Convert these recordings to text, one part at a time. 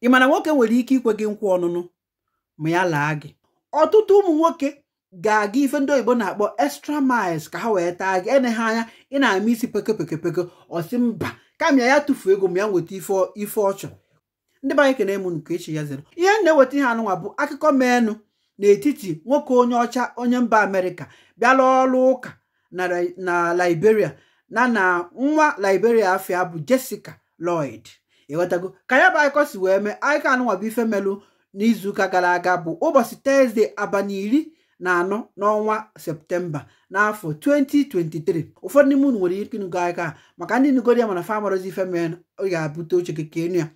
ị mana nwoke nwere ike ikwe gị nkwa ọnụnụ ma ya laa gị ọtụtụ ụmụ nwoke ga-aga ife ndị oyibo na-akpọ extra miles ka ha wee taa gị ene anya ị na-ama isi peke peke peke ọsị mba kama ya tụfuo ego ma ya nweta ife ọ chọrọ ndị be anyị kene m nke echi ya zere ihe na-eweta ihe anụnwa bụ akụkọ menụ n'etiti nwoke onye ọcha onye mba amerịka bịala ọrụ ụka na liberia na na nwa liberia afọ ya bụ jessica lloyd ịghọtago ka ya bụ akụkọ si wee mee anyị anụnwa bụ ife melụ n'izuụka gara aga bụ ụbọchị tọzdee abalị iri na anọ n'ọnwa septemba n'afọ 2023 ụfọdụ n'ime unu nwere ike ịnụgo aka maka ndị nugoro ya mana famarazi ife mee ọ ga-abụte oche keke enu ya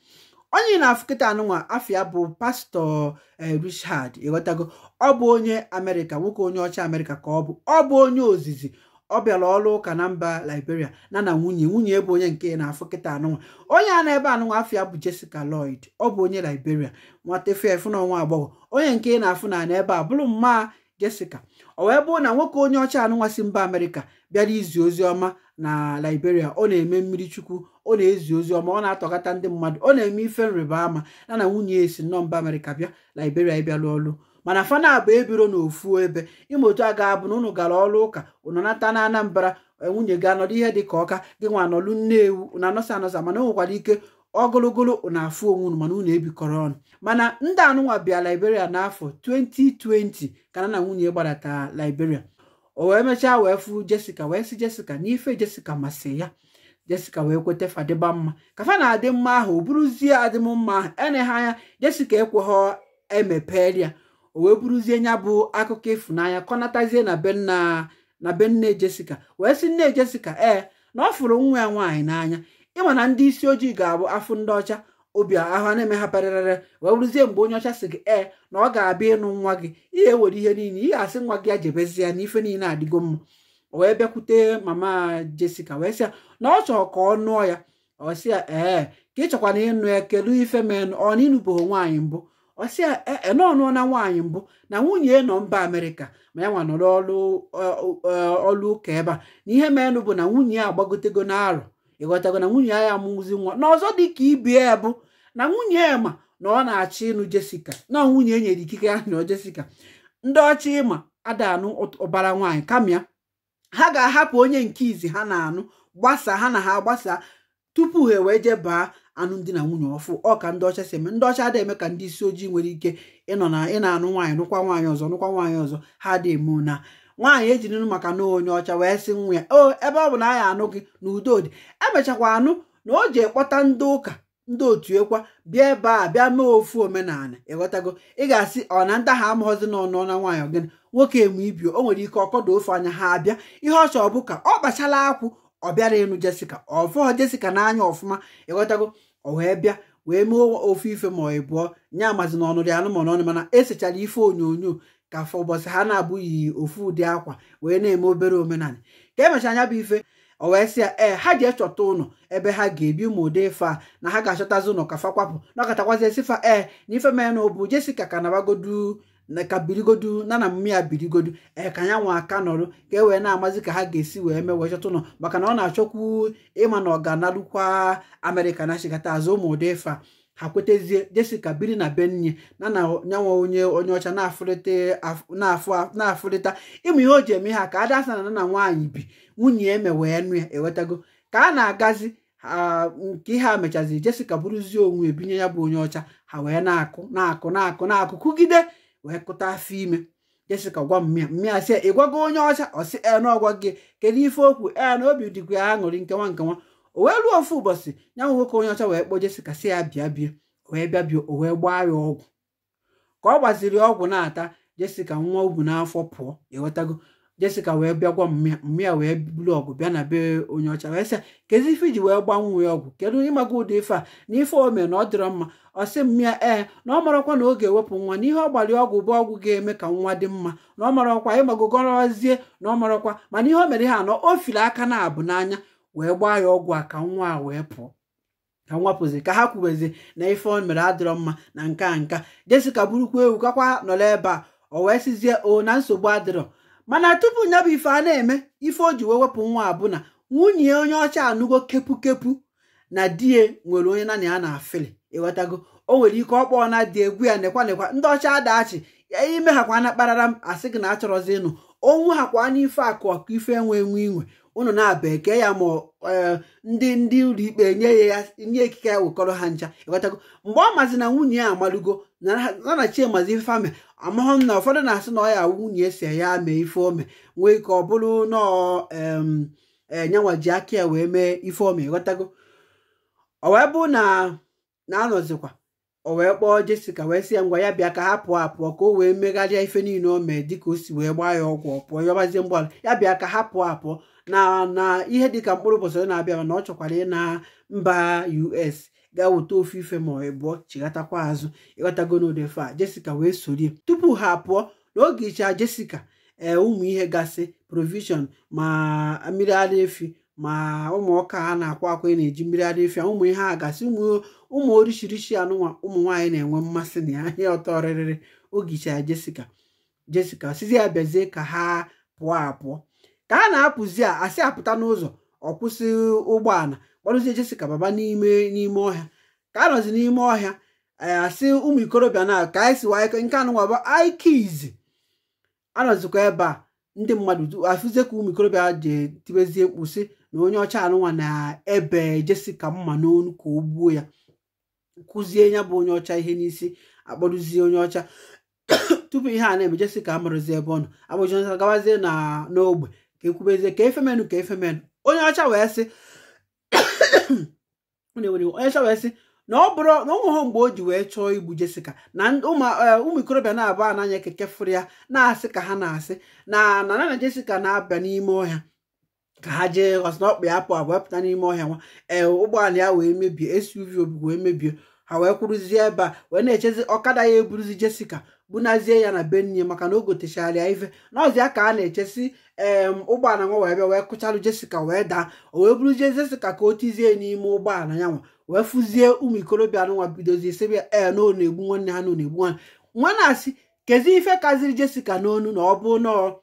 onye na-afụ kịta anụnwa ya bụ pastọ eh, Richard ịghọtago ọ bụ onye amerịka nwoke onye ọcha amerịka ka ọ bụ ọ bụ onye ozizi ọ bịara ọrụ ụka na mba Liberia na na nwunye nwunye bụ onye nke na-afụ kịta anụnwa onye a na-ebe anụnwa afia bụ Jessica Lloyd ọ bụ onye Liberia nwata fef na ọnwa agbọghọ onye nke na-afụ na na ebe a bụrụ mma Jessica ọ wee bụrụ na nwoke onye ọcha anụnwa si mba amerika bịara izi ozi ọma na Liberia ọ na-eme mmiri chukwu ọ na-ezi ozi ọma ọ na atọgata ndị mmadụ ọ na-eme ife nrịba ama na na nwunye esi nnọọ mba amerika bịa Liberia ịbịalụ ọlụ mana fana bụ ebiro n'ofu ebe ime otu a ga-abụ na unu gara ọrụ ụka unu nata na anambra e, nwunye ga anọdụ ihe dị ka ọka gị nwa anọlụ nnewu na anọsa anọsa mana onwekwara ike ogologolo na afụ onwe unu mana unu ebikọrọ ọnụ mana ndị anụnwa bịa liberia n'afọ 2020 ka na na nwunye gbadata liberia o wee mechaa wee fụ jesica wee sị jesica na ife jessica masị ya jessica wee kweta fadịba mma ka fa na-adị mma ahụ o buruzie adịm mma eneghị anya jesica ekweghị emepelia o wee bụrụzie nya bụ akụkọ ịfụnanya kọnatazie na be nna na be nne Jessica wee sị nne jesika ee na ọ fụrụ nwa ya nwaanyị n'anya ịma na ndị isi ojii ga-abụ afụ ndị ọcha obi ahụ na-eme ha parịrịrị wee bụrụzie mgbe onye ọcha sị gị ee na ọ ga-abịa ịnụ nwa gị ihe ewere ihe niile ihe asị nwa gị ya jebezie ya na ife niile adịgo mma wee bịakwute mama Jessica wee sị ya na ọ chọrọ ka ọ nụọ ya ọ sị ya ee ka ị chọkwana ịnụ ya kedu ife menụ ọ na nwaanyị mbụ ọsị ene na nwaanyị mbụ na nwunye nọ mba amerika ma ya nwa nọrọ ọlụ ụka ebe a na ihe meenụ bụ na nwunye a agbagotego na ịghọtago na nwunye ya amụzi nwa n'ọzọ dị ka ibie bụ na nwunye ya ma na ọ na achị ịnụ jesika na nwunye e nyere ikike ya nọ jesika ndị ọcha ịma adanụ ụbara nwaanyị kama ya ha ga-ahapụ onye nke izi ha na-anụ gbasa ha na ha gbasa tupu ha ewe jebaa alụmdi na nwunye ọfụ ọ ndị ọcha si eme ndị ọcha adịghị eme ka ndị isi ojii nwere ike ịnọ na ị na-anụ nwaanyị nụkwa nwaanyị ọzọ nụkwa nwaanyị ọzọ ha dị eme na nwaanyị ejirinu maka na onye ọcha wee sị nwa ya o ebe ọ bụ na anya anụ gị na udo dị emechakwa anụ na o ji ekpọta ndị ụka ndị otu ekwa bịa ebe a bịa mee ofu omenala ịghọtago ị ga-asị ọ na ndị ahụ amaghọzi n'ọnụ na nwaanyị ọgịnị nwoke eme ibio o nwere ike ọkọdụ ofe anya ha abịa ihe ọ chọọ bụ ka ọ kpachala akwụ ọ bịara ịnụ jesika ọ fụọ jesika n'anya ọfụma ịghọtago o wee bịa wee mee ofe ife ma ọ bụọ nye amazi na ọnụ dị anụmanụ n'ọnụ mana esechara ife onyonyo ka afọ ụbọchị ha na-abụghị ofu ụdị akwa wee na-eme obere omenala ka emechara anya bụ ife owee wee sị ya ee ha ji echọta ụlọ ebe ha ga-ebi ụmụ ụdị ife a na ha ga-achọtazi ụlọ ka fa kwapụ na ọkatakwazị esifa ee na ife mee na ọ bụ Jessica ka ka birigodu na na mmiri a birigodu ee ka anyanwụ aka nọrụ ka e wee na-amazi ka ha ga-esi wee mee wee chọta ụlọ maka na ọ na-achọkwu ịma na ọ ga-analụkwa na chigata azụ ụmụ ụdị fa ha kwetezie jesika biri na benye na na nyanwa onye onye ọcha na-afụrịta ịmụ ihe o ji eme ha ka ada asa na na nwaanyị bi nwunye eme wee nụ ya ewetago ka a na-agazi nke ihe a mechaziri jesika bụrụzie onwe ebinye ya bụ onye ọcha ha wee na-akụ na-akụ na-akụ na-akụ kụgide wee kụta afọ ime jesika gwa mmịa mmịa sị ị gwago onye ọcha ọsị en ọgwa gị kedu ife okwu na obi dịkwa ya aṅụrị nkewa nkewa o wee ruo ofu ụbọchị ya nwe nwoke onye ọcha wee kpọọ jesika si ya bịa bie wee bịa bie o wee gbaa ya ọgwụ ka ọ gbaziri ọgwụ na-ata jesika nwa ubu n'afọ pụọ ewetago Jessica wee bịagwa mmịa wee buru ọgụ bịa na be onye ọcha wee sị kezi ife iji wee gbanwee ọgwụ kedu ịmaga ụdị ife a na ife o mee na ọ dịrọ mma ọ sị mmịa ee na ọ marakwa na ọ ga-ewepụ nwa n'ihe ọ gbalị ọgwụ bụ ọgwụ ga-eme ka nwa dị mma na ọ marakwa ịmagogorozie na ọ marakwa mana ihe o mere ha anọ o fili aka na abụ n'anya wee gbaa ya ọgwụ a ka nwa a wee pụọ ka nwa pụzi ka ha kwubezi na ife o mere adịrọ mma na nka nka Jessica burukwa ewu kakwa nọrọ ebe a o wee sizie o na nsogbu adịrọ mana tupu nya bụ ife a na-eme ife o ji wee wepụ nwa abụna nwunye onye ọcha anụgo kepu na di ya nwere onye nana ya na afili ịghọtago o nwere ike ọkpọ na dị egwu ya nekwa nekwa ndị ọcha adachi ya ime ha na kparara m asị gị na achọrọzi ịnụ onwu ha kwa n'ife akụ ọkụ ife enwe enwe inwe unu na-aba eke ya ma e, ndị ndị ụlọikpe nye ya nye ekike ya wekọrọ ha ncha ịghọtago mgbe ọ mazi na nwunye ya amalugo nanachi mazi ife ame amahụ na ụfọdụ na-asị na ọ ya nwunye si ya mee ife ome nwee ike ọ bụrụ na enyanwa e, ji aka ya wee mee ife ome ghọtago ọ bụ na na-anọzikwa o wee kpọọ Jessica wee sị ya ngwa ya bịa ka ha pụọ apụọ ka o wee megharịa ife niile o mee dịka o si wee gbaa ya ọgwụ ọpụọ ya yọbazie mgbaala ya bịa ka ha pụọ apụọ na na ihe dịka mkpụrụ ụbọchị ọ na-abịa na ọ chọkwara ị na mba us ga weta ofe ife ma ịbụọ chighatakwa azụ ịghọtago a jesica wee sorie tupu ha pụọ n'oge icha jesica ee eh, ụmụ ihe gasị provision ma mmiri ara efi ma ụmụ ọka ha na-akwa akwa na-eji mmiri ara efi ụmụ ihe a gasị ụmụ orishirishi anụnwa ụmụ nwaanyị na-enwe mmasị na ya ihe ọtọ rịrịrị oge icha jesica jesica sizi ya bịazie ka ha pụọ apụọ ka a na-apụzi a asị apụta n'ụzọ ọ kwụsị ụgbọala gbarụzie jesika baba n'ime n'ime ọhịa ka a nọzi n'ime ọhịa eh, asị ụmụ ikorobịa na ka anyị siwa nke anụnwaba aikizi anọzikwa ebe a ndị mmadụ afụzie ka ụmụ ikorobịa ji tibezie mkpụsị na onye ọcha anụnwa na-ebe jesika mma n'onu ka o gbuo ya kụzie ya bụ onye ọcha ihe n'isi akpọrụzie onye ọcha tupu ihe a na-eme jesika amarụzi ebe ọ nọ abụjọnta gabazie na n'ogbe ekwubezie ka efemenụ ka efemenụ onye ọcha wee sị onye ọcha wee sị na ọ bụrụ na ụmụhụ mgbe o ji wee chọọ igbu Jessica na e, ụmụ ikorobịa na-abụ ananya keke fụrụ ya na-asị ka ha na-asị na na nana Jessica na-abịa n'ime ọhịa ka ha jee ghọsị na ọkpa ya apụ abụọ pụta n'ime ọhịa nwa ee ụgbọala ya wee mebie SUV obi wee mebie ha wee kwụrụzie ebe a wee na-echezi ọkada ya eburuzi Jessica bunazie ya na be maka na o gotechara ya ife ya ka a na-echesi ee ụgbọala nwa wee bịa wee kụcharụ jesika wee daa o wee je jesika ka o tizie n'ime ụgbọala ya nwa wee fụzie ụmụ ikorobịa nwa bidozie sebia ee na ọ na-egbu nwanne ha na ọ na-egbu nwanne nwa na-asị kezi ife kaziri jesika n'onu na ọ bụ nọọ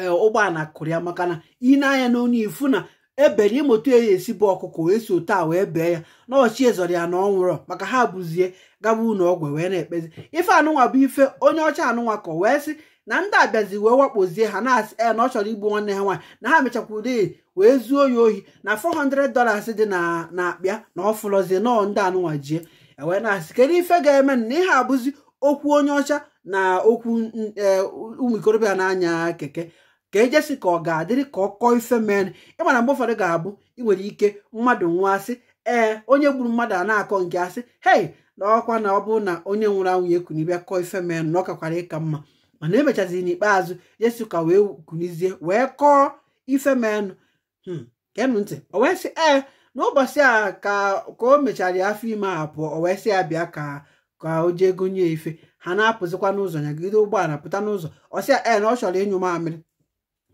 ee ụgbọala kụrụ ya maka na ị na-anya n'onu ifu na ebere ịmụta ya esi bụ ọkụkọ wee si otu a wee bee ya na ọchị ezọrọ ya na ọ maka ha bụzie gaba ụnụ ọgwụ e wee na-ekpezi ife anụnwa bụ ife onye ọcha anụnwa kọ wee sị na ndị abịazi wee wakpozie ha na-asị e na ọ chọrọ igbu nwanne ha nwaanyị na ha mechakwuru wee zuo ya ohi na 400 dollars dị na na-akpịa na ọ fụlọzie nọọ ndị anụnwa jie e wee na-asị kedu ife ga-eme na ihe abụzi okwu onye ọcha na okwu e, ụmụ ikorobịa na-anya keke ka ejesi ka ọ ga-adịrị ka ọ kọọ ife mere ịmana mgbe ụfọdụ ga-abụ ị nwere ike mmadụ nwa asị ee onye gburu mmadụ a na-akọ nke asị hei na ọkwa na ọ bụrụ na onye nwụrụ anwụ ya ekunibịa kọọ ife mere na ọ kwara ịka mma mana emechaziri n'ikpeazụ jesi ka wee kunizie wee kọọ ife menụ hmm, kenụ ntị o wee sị ee n'ụbọchị a ka o mechara afọ ime a pụọ o wee sị ya bịa ka ka o jee gonye ife ha na-apụzikwa n'ụzọ nyagide ụgbọala pụta n'ụzọ ọ ya ee na ọ chọrọ ịnyụ mamịrị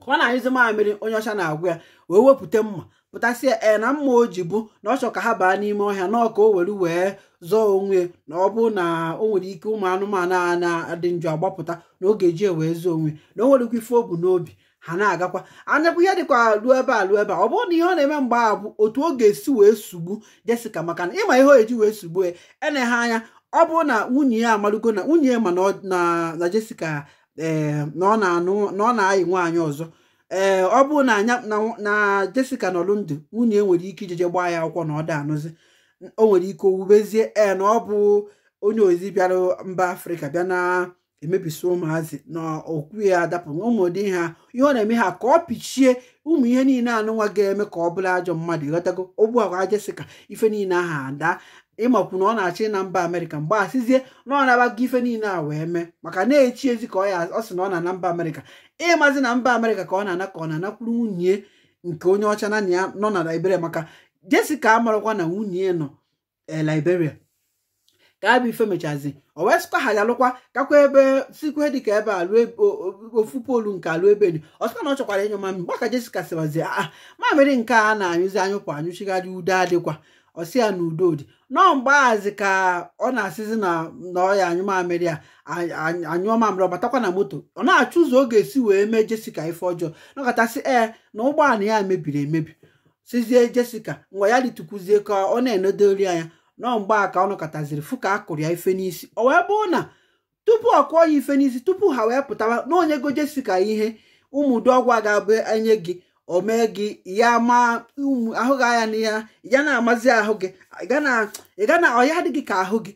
ka ọ na-anyụzi mamịrị onye ọcha na agwa ya wee wepụta mma pụtasị e na mma o ji bụ na ọ chọ ka ha baa n'ime ọhịa na ọka o were wee zọọ onwe na ọ bụ na o nwere ike ụmụ anụmanụ a na-adị njọ agbapụta na oge ji e wee zọọ onwe na o nwere ife obu n'obi ha na-agakwa anyakwa ihe dịkwa ruo ebe a ruo ebe a ọ bụrụ na ihe ọ na-eme mgbe a bụ otu o ga-esi wee sugbu jesika maka na ịma ihe o eji wee sugbu ya ene ha anya ọ bụrụ na nwunye ya amarugo na nwunye ya ma na Jessica ee na ọ na-ayị nwaanyị ọzọ ee ọ bụrụ na anya na jesica nọlụ ndụ nwunye e nwere ike ijeje gbaa ya akwụkwọ na ọ da anụzi o nwere ike owubezie ee na ọ bụ onye ozi bịara mba Afrịka bịa na emebisi ụmụazị na okwu ya adapụ ụmụdị ha ihe ọ na-eme ha ka ọ pichie ụmụ ihe niile nwa ga-eme ka ọ bụrụ ajọ mmadụ ịghọtago ogbu agwa jesika ife niile aha ada ịmakwu na ọ na-achị na mba amerịka mgbe asịzie na ọ na-abago ife niile a wee mee maka na-echi ezi ka ọ sị na ọ na-ana mba amerịka ịmazi na mba amerịka ka ọ na-ana ka ọ na-anakwuru nwunye nke onye ọcha na ya nọ na liberia maka Jessica amarakwa na nwunye nọ eh, liberia ka abụ ife mechazi o wee sịkwa ha alụkwa kakwa ebe sikwe ka ebe alụ ofu polu nke alụ ebe dị ọ sịkwa na ọ chọkwara ịnyụ mami gbaka Jessica siwazi a ah, ah, mamịrị nke a na-anyụzi anyụpụ anyụchigharị udo adịkwa ọsị ya na udo dị nọọ mgbaghazi ka ọ na-asịzi na na ọya anyụmamịrị ya anyụọmamịrị ọbatakwa na moto ọ na-achụ ụzọ ọ ga-esi wee mee jesika ife ọjọọ nọkọtasị ee na ụgbọala ya mebiri emebi sizie jesika mgbe ya litukwuzie ka ọ na-enodori anya nọọ a ka ọ nọkọtaziri fụ ka a kụrụ ya ife n'isi o wee bụrụ na tupu ọ kụọ ya ife n'isi tupu ha wee pụtawa na onye go jesika ihe ụmụdụ ọgwụ a ga-abụ enye gị o mee gị ya ma ahụ gị anya na ya ya na-amazi ahụ gị ị ga na ọya adịghị ka ahụ gị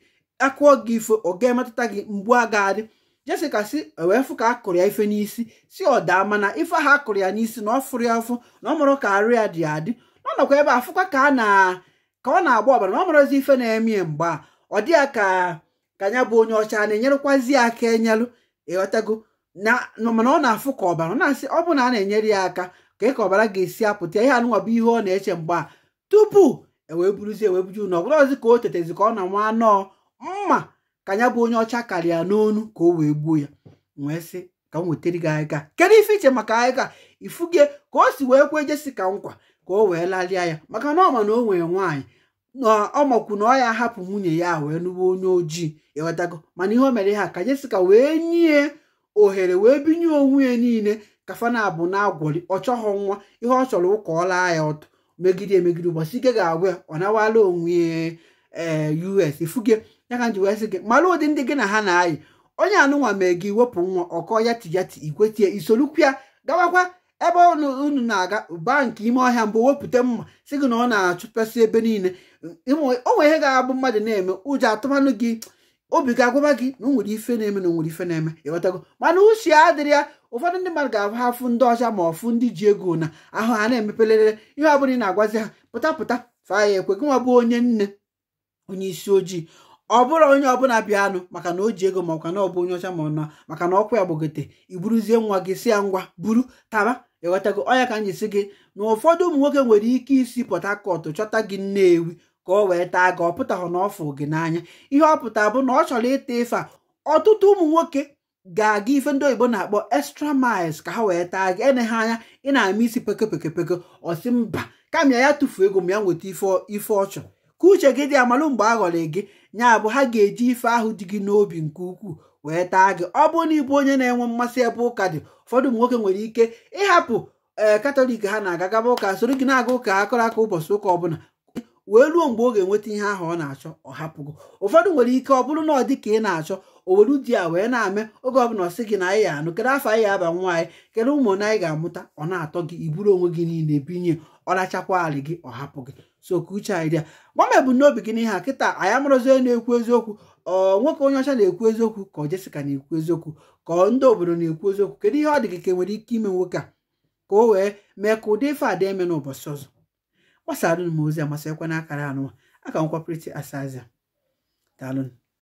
akụọ gị ife ọ ga-emetụta gị mgbu a ga-adị jesika si wee fụ ka a kụrụ ya ife n'isi si ọ daa mana ife ahụ a kụrụ ya n'isi na ọ fụrụ ya afụ na ọ mụrụ ka arụ ya dị adị na ọ ebe a fụkwa ka a na ka ọ na-agba ọbara na ọ ife na emie ya mgbe a ọ dị ya ka ka ya bụ onye ọcha na-enyerekwazi ya aka enyelụ ịghọtago na mana ọ na-afụ ka ọbara ọ na-asị ọ bụ na a na-enyere ya aka ka ị ka ọbara ga-esi apụta ihe anụnwa bụ ihe ọ na-eche mgbe a tupu ewee buruzie wee ọ na ọgụrụ ọzi ka o tetezi ka ọ na nwa anọọ mma ka ya bụ onye ọcha karịa n'onu ka o wee gbuo ya wee sị ka m wetara gị ahịga kedu ife iche maka ahịga ifuge ka o si wee kwee jesi ka nkwa ka o wee lalịa ya maka na ọma na o nwere nwaanyị na ọ makwu na ọ ya hapụ nwunye ya wee nụwa onye ojii ewetago mana ihe o mere ha ka jesika wee nye ohere wee binye onwe ya niile kafana bụ na-agwọli ọ chọghọ nwa ihe ọ chọrọ ụka ọ laa ya ọtọ megide emegide ụbọchị ike ga agwa ya ọ nawala onwe eh, us ifuge ya ka nji wee sị gị mara ụdị ndị gị na ha na-ayị onye anụnwa mee gị wepụ nwa ọkọ ya ti ya ti ikwetie isolukwu ya gawakwa ebe unu na-aga ba nke ime ọhịa mbụ wepụta mma si gị na ọ na-achụpesị ebe niile o nwere ihe ga-abụ mmadụ na-eme ụjọ atụmanụ gị obi ga-agwaba gị na o nwere ife na-eme na o nwere ife na-eme ịghọtago mana uche adịrị ya ụfọdụ ndị mmadụ ga-ahụ afụ ndị ọcha ma ọfụ ndị ji ego na ahụ ha na-emepelelere ihe ọbụla ị na-agwazi ha pụta pụta faa ya ekwe ma bụ onye nne onye isi ojii ọ bụrụ onye ọbụla bịanụ maka na o ji ego ma na ọ bụ onye ọcha ma ọ na maka na ọkwa ya gbogote iburuzie nwa gị si ya ngwa buru taba ịghọtago ọnya ka anyị si gị na ụfọdụ ụmụ nwoke nwere ike isi Port chọta gị Nnewi ka ọ wee taa gị ọ pụtahụ na ọfụ gị n'anya ihe ọ pụta bụ na ọ chọrọ ịta ife a ọtụtụ ụmụ nwoke ga-aga ife ndị oyibo na-akpọ extra miles ka ha wee taa gị eneghe anya ị na-ama isi peke peke peke ọsị mba kama ya tụfuo ego m ya nweta ife ọ chọrọ ka uche gị dị amalụ mgbe a ghọrọ gị nya bụ ha ga-eji ife ahụ dị gị n'obi nke ukwuu wee taa gị ọ bụrụ na ịbụ onye na-enwe mmasị ebe ụka dị ụfọdụ ụmụ nwoke nwere ike ịhapụ ee eh, katọlik ha na-aga gaba ụka soro gị na-aga ụka akọrọ aka ụbọchị ụka ọbụla wee ruo mgbe ọ ga-enweta ihe ahụ ọ na-achọ ọ hapụgo ụfọdụ nwere ike ọ bụrụ na ọ dị ka ị na-achọ o were di ya wee na-ame oge ọbụla ọ sị gị na anyị ya anụ kedu afọ anyị ya aba nwa anyị kedu ụmụ na anyị ga-amụta ọ na-atọ gị iburu onwe gị niile binye ọ rachakwa alị gị ọ hapụ gị so ka uche anyị dị ya gbam ebumnobi gị n'ihe a kịta anyị amụrụzi onye na-ekwu eziokwu nwoke onye ọcha na-ekwu eziokwu ka ọ na-ekwu eziokwu ka ndị obodo na-ekwu eziokwu kedu ihe ọ dị gị ka e nwere ike ime nwoke a ka o wee mee ka ụdị ife a eme n'ụbọchị ọzọ gbasara m ozi amasịkwa n'akara anụwa aka nkwapụrịta asazia daalụ